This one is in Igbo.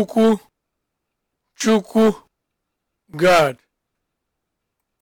Chukwu Chukwu God